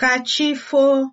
Ka chi